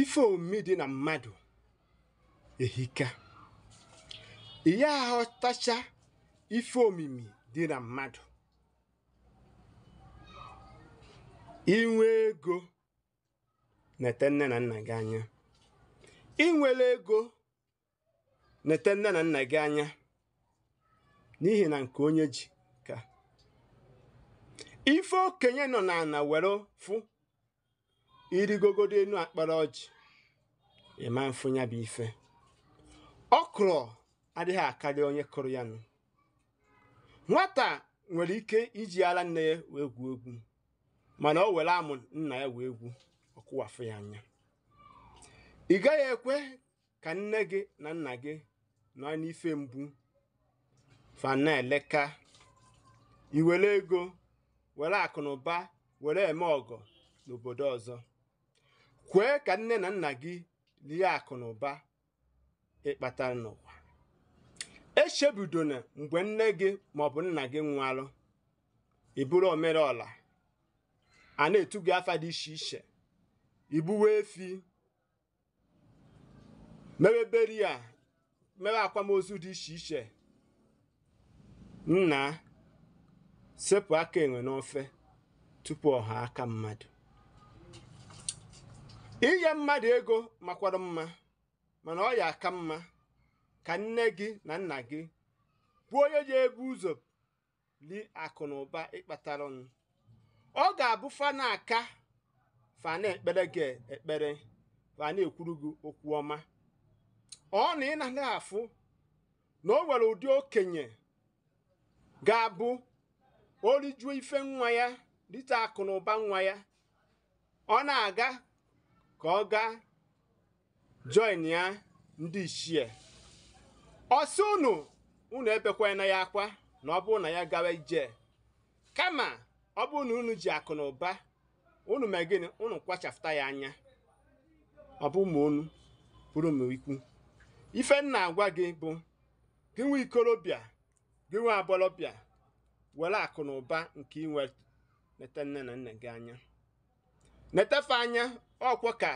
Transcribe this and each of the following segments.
ife omimi dị na mmadụ ehika ihe aghọtacha ife omimi dị na mmadụ inwe ego nete nne na nna gị anya inwere ego nete nne na nna gị anya n'ihi na nke onye ji ka ife okenye nọ n'ala were fụ irigogodo enu akpara ọjị ịma mfu ya bụ ife ọkrọ adịghị akarị onye kụrụ ya nụ nwata nwere ike iji ara nne ya wee gwuo egwu mana o were amụ nna ya wee egwu ọkụwafụ ya anya ị gaghị ekwe ka nne gị na nna gị nọ n'ife mgbu fana eleka iwere ego were akụ na ụba were eme ọgọ n'obodo ọzọ kwee ka nne na nna gị lie akụ na ụba ịkpatara n'ụwa echebidona mgbe nne gị maọbụ nna gị nwụalụ iburu omere ọla a na-etu gị afa dị iche iche igbuwe efi mewe a mewe akwamozu dị iche iche nna sepụ aka enwe n'ofe tupu ọha aka mmadụ inye mmadụ ego makwara mma mana ọ ya aka mma ka nne gị na nna gị bụ onye ji ebu ụzọ li akụ na ụba ịkpatara ọnụ ọ ga-abụ fana aka fana ekpere gị ekpere fana ekwuru gị okwu ọma ọ na ị na afụ na o nwere ụdị okenye ga-abụ orijuo ife nwa ya rite akụ na ụba nwa ya ọ na-aga ka ọ gaa join ya ndị ichie osi unu unu na ya akwa na ọ bụrụ na ya gawa ije kama ọ bụrụ na unu ji akụ na ụba unu mee gịnị unu kwachafụta ya anya ọ bụ ụmụ unu bụrụ m ikwu ife nna agwa gị bụ gị nwe ikorobịa gị nwe agbọlọbịa were akụ na ụba nke inwe leta nne na nna gị anya na-etefe anya ọkwọ ka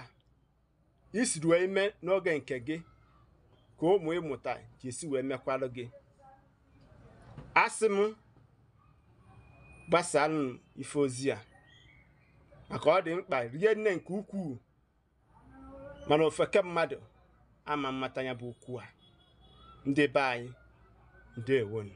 isiri wee mee n'oge nke gị ka ụmụ ịmụta ji esi wee mekwarụ gị asị m gbasalụ ife ozi a maka ọ dị mkpa rie nne nke ukwuu mana ofeke mmadụ ama mmata ya bụ ukwu a ndị be anyị ndewonu